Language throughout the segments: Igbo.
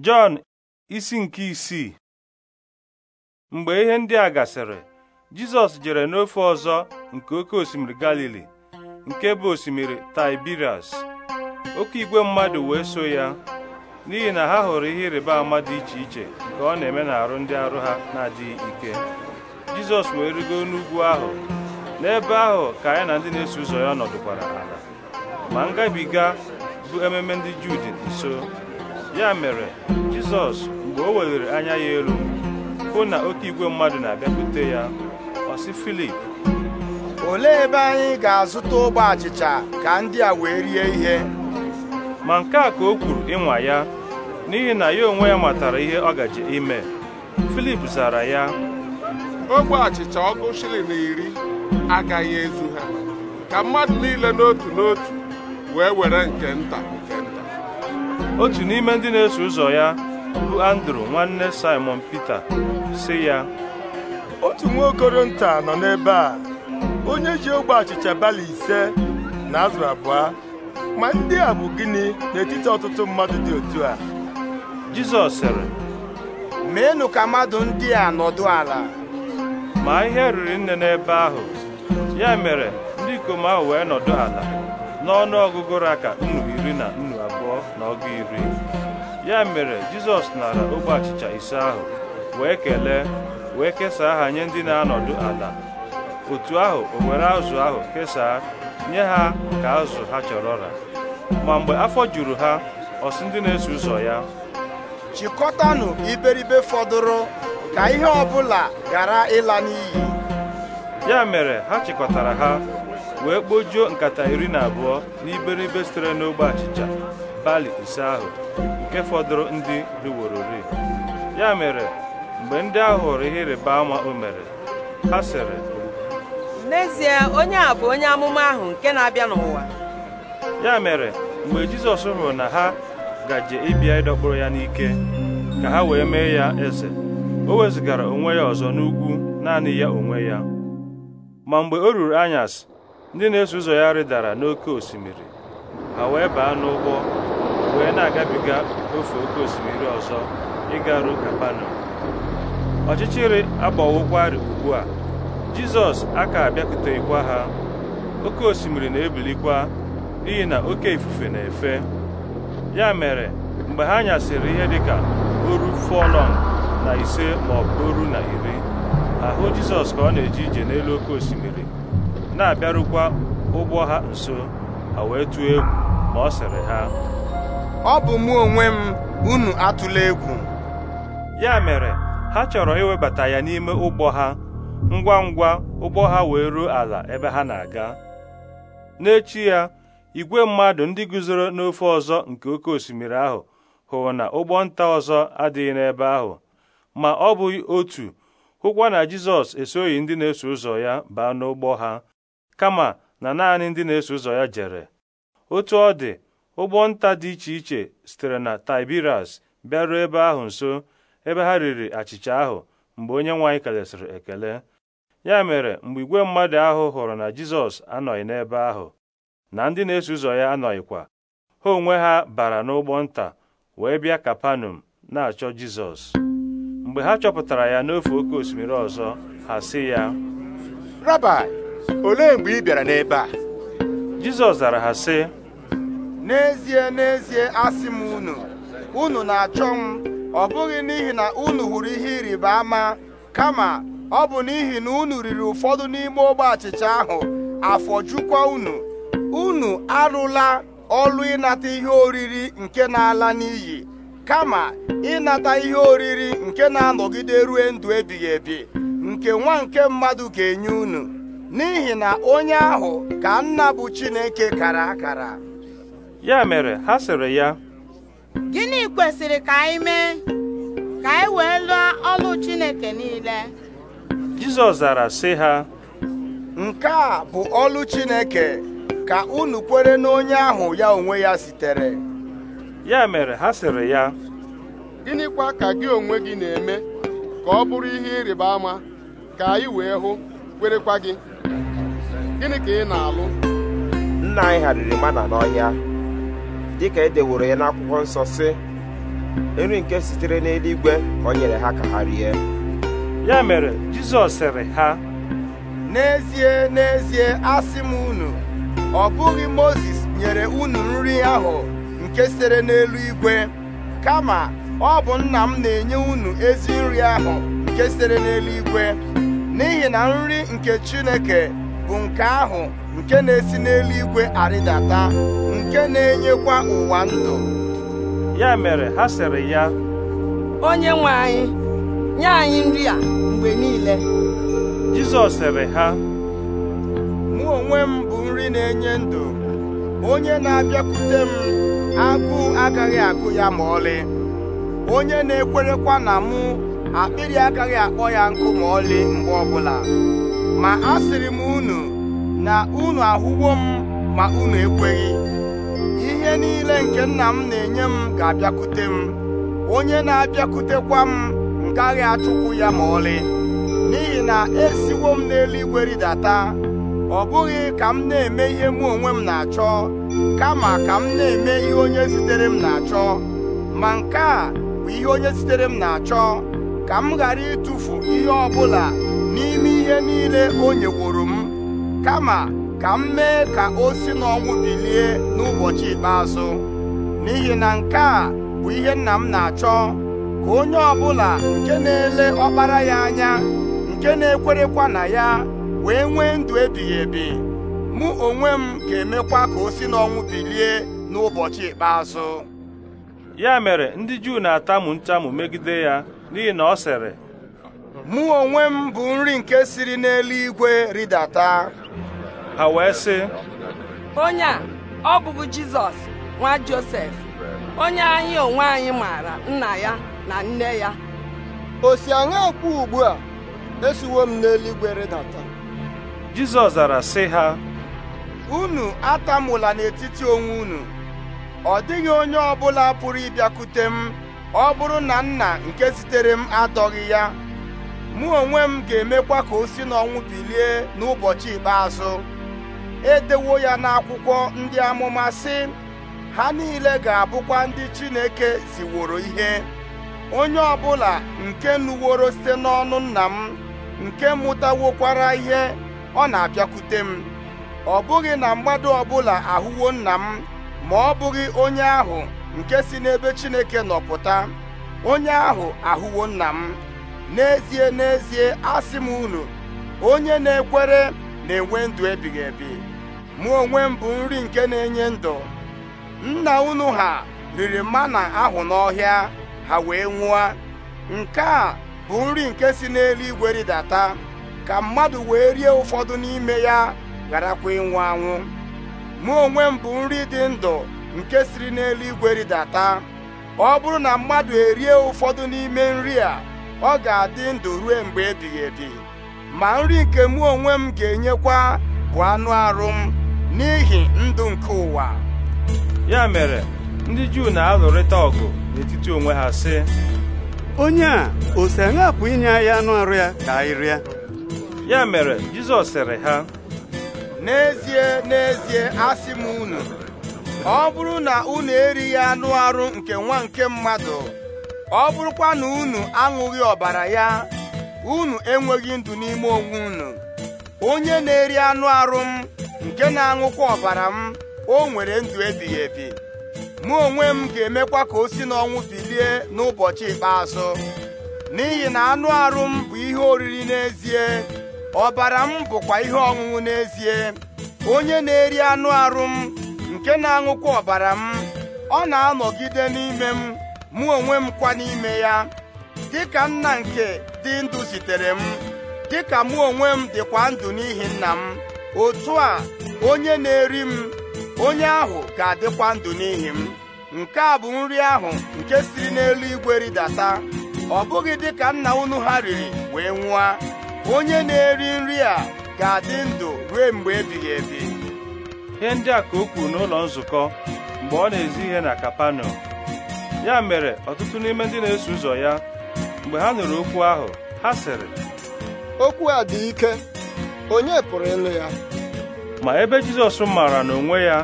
Jọn isi nke isii mgbe ihe ndị a gasịrị Jizọs jere n'ofe ọzọ nke oke osimiri Galili nke bụ osimiri Tiberias oke igwe mmadụ wee so ya n'ihi na ha hụrụ ihe ịrịba ama dị iche iche nke ọ na-eme n'arụ ndị arụ ha na-adịghị ike Jizọs wee rigo n'ugwu ahụ n'ebe ahụ ka ya na ndị na-eso ụzọ ya nọdụkwara ala ma ngabiga bụ ememe ndị Juu dị nso ya mere jizọs mgbe o weliri anya ya elu hụ na oke igwe mmadụ na-abịakwute ya ọ filip olee ebe anyị ga-azụta ogbe achịcha ka ndị a wee rie ihe ma nke a ka o kwuru ịnwa ya n'ihi na ya onwe ya matara ihe ọ gaji ime filip zara ya ogbe achịcha ọgụ shilling iri agaghị ezu ha ka mmadụ niile n'otu n'otu wee were nke nta otu n'ime ndị na-eso ụzọ ya bụ andrew nwanne simon peter si ya otu nwa okoro nọ n'ebe a onye ji ogbe achịcha bali ise na azụ abụọ ma ndị a bụ gịnị n'etiti ọtụtụ mmadụ dị otu a jizọs sịrị meenụ ka mmadụ ndị a nọdụ ala ma ihe riri nne n'ebe ahụ ya mere ndị ikom ahụ wee nọdụ ala n'ọnụ ọgụgụ raka nnu iri na nnu abụọ na ọgụ iri ya mere jizọs nara ogbe achịcha ise ahụ wee kelee wee kesaa ha nye ndị na-anọdụ ala otu ahụ o were azụ ahụ kesaa nye ha ka azụ ha chọrọ ra ma mgbe afọ juru ha ọsị ndị na-eso ụzọ ya chịkọtanụ iberibe fọdụrụ ka ihe bụla ghara ịla n'iyi ya mere ha chịkọtara ha wee kpojuo nkata iri na abụọ n'iberibe sitere n'ogbe achịcha bali ise ahụ nke fọdụrụ ndị riworori ya mere mgbe ndị ahụ hụrụ ihe ịrịba ama o mere ha sịrị n'ezie onye a bụ onye amụma ahụ nke na-abịa n'ụwa ya mere mgbe jizọs hụrụ na ha gaje ịbịa ịdọkpụrụ ya n'ike ka ha wee mee ya eze o wezụgara onwe ya ọzọ n'ugwu naanị ya onwe ya ma mgbe o ruru anyasị ndị na-eso ụzọ ya rịdara n'oké osimiri ha wee baa n'ụgbọ wee na-agabiga ofe oké osimiri ọzọ ịga ruo ọchịchịrị agbawokwarị ugbu a jizọs aka abịakwuteghịkwa ha oké osimiri na-ebilikwa n'ihi na oké ifufe na-efe ya mere mgbe ha nyasịrị ihe dịka oru fọlọn na ise ma ọ bụ oru na iri ahụ jizọs ka ọ na-eje ije n'elu oké osimiri na-abịarukwa ụgbọ ha nso ha wee tụọ egwu ma ọ sịrị ha ọ bụ mụ onwe m unu atụla egwu ya mere ha chọrọ iwebata ya n'ime ụgbọ ha ngwa ngwa ụgbọ ha wee ruo ala ebe ha na-aga n'echi ya igwe mmadụ ndị guzoro n'ofe ọzọ nke oke osimiri ahụ hụrụ na ụgbọ nta ọzọ adịghị n'ebe ahụ ma ọ bụghị otu hụkwa na Jizọs esoghị ndị na-eso ụzọ ya baa n'ụgbọ ha kama na naanị ndị na-eso ụzọ ya jere otu ọ dị ụgbọ nta dị iche iche sitere na tibiras bịaruo ebe ahụ nso ebe ha riri achịcha ahụ mgbe onye nwaanyị kelesịrị ekele ya mere mgbe igwe mmadụ ahụ hụrụ na Jizọs anọghị n'ebe ahụ na ndị na-eso ụzọ ya anọghịkwa ha onwe ha bara n'ụgbọ nta wee bịa Kapanọm na-achọ Jizọs mgbe ha chọpụtara ya n'ofe oke osimiri ọzọ ha sị ya Rabbi olee mgbe ị bịara n'ebe a Jizọs zara ha sị n'ezie n'ezie asị m unu unu na-achọ m ọ bụghị n'ihi na unu hụrụ ihe ịrịba ama kama ọ bụ n'ihi na unu riri ụfọdụ n'ime ogbe achịcha ahụ afọ jukwa unu unu arụla ọlụ ịnata ihe oriri nke na-ala n'iyi kama ịnata ihe oriri nke na-anọgide rue ndụ ebighị ebi nke nwa nke mmadụ ga-enye unu n'ihi na onye ahụ ka nna bụ Chineke kara akara ya mere ha sịrị ya gịnị kwesịrị ka anyị mee ka anyị wee lụọ ọlụ Chineke niile Jizọs zara sị ha nke a bụ ọlụ Chineke ka unu kwere n'onye ahụ ya onwe ya sitere ya mere ha sịrị ya gịnịkwa ka gị onwe gị na-eme ka ọ bụrụ ihe ịrịba ama ka anyị wee hụ kwerekwa gị gịnị ka ị na-alụ nna anyị hariri mana n'ọhịa dịka e deworo ya n'akwụkwọ nsọ si nri nke sitere n'eluigwe ka o nyere ha ka ha rie ya mere Jizọs sịrị ha n'ezie n'ezie asị m unu ọ bụghị Mozis nyere unu nri ahụ nke sitere n'elu igwe, kama ọ bụ nna m na-enye unu ezi nri ahụ nke sitere n'eluigwe n'ihi na nri nke Chineke bụ nke ahụ nke na-esi n'eluigwe arịdata nke na-enyekwa ụwa ndụ ya mere ha sịrị ya onye nwe anyị nye anyị nri a mgbe niile Jizọs sịrị ha mụ onwe m bụ nri na-enye ndụ onye na-abịakwute m akụ agaghị akụ ya ma ọlị onye na-ekwerekwa na mụ akpịrị agaghị akpọ ya nkụ ma ọlị mgbe ọbụla ma ha siri m unu na unu ahụwo m ma unu ekweghị ihe niile nke nna m na-enye m ga-abịakwute m onye na-abịakwutekwa m ngaghị achụkwu ya ma ọlị n'ihi na esiwo m n'eluigwe rịdata ọ bụghị ka m na-eme ihe mụ onwe m na-achọ kama ka m na-eme ihe onye zitere m na-achọ ma nke a bụ ihe onye zitere m na-achọ ka m ghara ịtụfu ihe ọ bụla n'ime ihe niile o nyeworo m kama ka m mee ka o si n'ọnwụ bilie n'ụbọchị ikpeazụ n'ihi na nke a bụ ihe nna m na-achọ ka onye ọbụla nke na-ele ọkpara ya anya nke na-ekwerekwa na ya wee nwee ndụ ebighị ebi mụ onwe m ga-emekwa ka o si n'ọnwụ bilie n'ụbọchị ikpeazụ ya mere ndị Juu na-atamu ntamu megide ya n'ihi na ọ sịrị mụ onwe m bụ nri nke siri n'eluigwe rịdata ha wee sị onye a ọ bụbu jizọs nwa josef onye anyị onwe anyị maara nna ya na nne ya o si aṅa kwụ ugbu a esiwo m n'eluigwe rịdata jizọs zara sị ha unu atamụla n'etiti onwe unu ọ dịghị onye bụla pụrụ ịbịakwute m ọ bụrụ na nna nke zitere m adọghị ya mụ onwe m ga-emekwa ka o si n'ọnwụ bilie n'ụbọchị ikpeazụ edewo ya n'akwụkwọ ndị amụma sị ha niile ga-abụkwa ndị Chineke ziworo ihe onye ọ bụla nke nụworo site n'ọnụ nna m nke mụtawokwara ihe ọ na-abịakwute m ọ bụghị na mmadụ ọbụla ahụwo nna m ma ọ bụghị onye ahụ nke si n'ebe Chineke nọpụta onye ahụ ahụwo nna m n'ezie n'ezie asị m unu onye na-ekwere na-enwe ndụ ebighị ebi mụ onwe m bụ nri nke na-enye ndụ nna unu ha riri mana ahụ n'ọhịa ha wee nwụọ nke a bụ nri nke si n'eluigwe rịdata ka mmadụ wee rie ụfọdụ n'ime ya gharakwa ịnwụ anwụ mụ onwe m bụ nri dị ndụ nke siri n'eluigwe rịdata ọ bụrụ na mmadụ erie ụfọdụ n'ime nri a ọ ga-adị ndụ ruo mgbe ebighị edi, ma nri nke mụ onwe m ga-enyekwa bụ anụ arụ m n'ihi ndụ nke ụwa ya mere ndị Juu na-alụrịta ọgụ n'etiti onwe ha sị onye a ose si inye anụ arụ ya ka anyị rịa ya mere Jizọs sịrị ha n'ezie n'ezie asị m unu ọ bụrụ na unu erighị anụ arụ nke nwa nke mmadụ ọ bụrụkwa na unu aṅụghị ọbara ya unu enweghị ndụ n'ime onwe unu onye na-eri anụ arụ m nke na-aṅụkwa ọbara m o nwere ndụ ebighị ebi mụ onwe m ga-emekwa ka o si n'ọnwụ bilie n'ụbọchị ikpeazụ n'ihi na anụ arụ m bụ ihe oriri n'ezie ọbara m bụkwa ihe ọṅụṅụ n'ezie onye na-eri anụ arụ m nke na-aṅụkwa ọbara m ọ na-anọgide n'ime m mụ onwe m kwa n'ime ya dịka nna nke dị ndụ zitere m dịka mụ onwe m dịkwa ndụ n'ihi nna m otu a onye na-eri m onye ahụ ga-adịkwa ndụ n'ihi m nke a bụ nri ahụ nke siri n'elu igwe ridata ọ bụghị dịka nna unu ha riri wee nwụọ onye na-eri nri a ga-adị ndụ ruo mgbe ebighị ebi ihe ndị a ka o kwuru n'ụlọ nzukọ mgbe ọ na-ezi ihe na Kapanọm ya mere ọtụtụ n'ime ndị na-eso ụzọ ya mgbe ha nụrụ okwu ahụ ha sịrị okwu a dị ike onye pụrụ ịlụ ya ma ebe Jizọs maara na onwe ya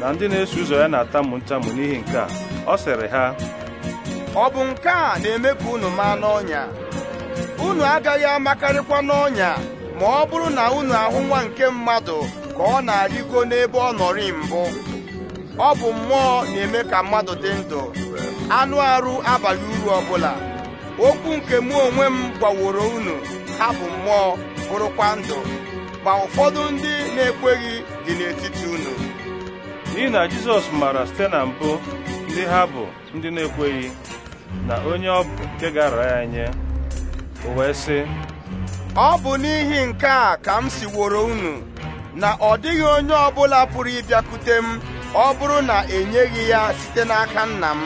na ndị na-eso ụzọ ya na atamụ ntamu n'ihi nke a ọ sịrị ha ọ bụ nke a na-eme ka unu maa n'ọnya unu agaghị amakarịkwa n'ọnya ma ọ bụrụ na unu ahụ nwa nke mmadụ ka ọ na-arịgo n'ebe ọ nọrị mbụ ọ bụ mmụọ na-eme ka mmadụ dị ndụ anụ arụ abalị uru ọbụla okwu nke mụ onwe m gbaworo unu ha bụ mmụọ bụrụkwa ndụ ma ụfọdụ ndị na-ekweghị dị n'etiti unu n'ihi na Jizọs maara site na mbụ ndị ha bụ ndị na-ekweghị na onye ọ bụ nke gara ya nye o wee sị ọ bụ n'ihi nke a ka m siworo unu na ọ dịghị onye ọbụla pụrụ ịbịakwute m ọ bụrụ na enyeghị ya site n'aka nna m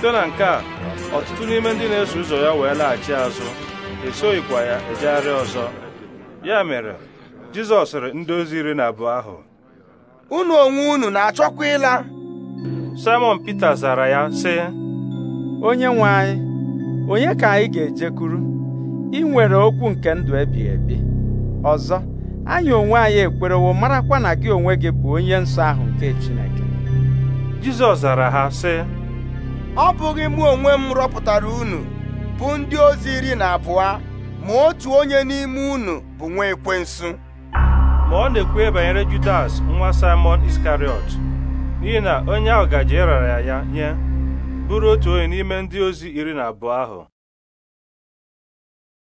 site na nke a ọtụtụ n'ime ndị na-eso ụzọ ya wee laghachi azụ esoghịkwa ya ejegharị ọzọ ya mere Jizọs sịrị ndị ozi iri na abụọ ahụ unu onwe unu na-achọkwa ịla Simon Pita zara ya sị onye nwe anyị onye ka anyị ga-ejekwuru ị nwere okwu nke ndụ ebighị ebi ọzọ anyị onwe anyị ekwerewo marakwa na gị onwe gị bụ onye nsọ ahụ nke Chineke Jizọs zara ha sị ọ bụghị mụ onwe m rọpụtara unu bụ ndị ozi iri na abụọ ma otu onye n'ime unu bụ nwa ekwensu ma ọ na-ekwe banyere Judas nwa Simon Iskariot n'ihi na onye ahụ gaje ịrara ya nye bụrụ otu onye n'ime ndị ozi iri na abụọ ahụ